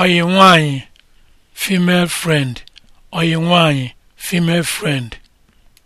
oyi nwanyị female friend oyi nwanyị female friend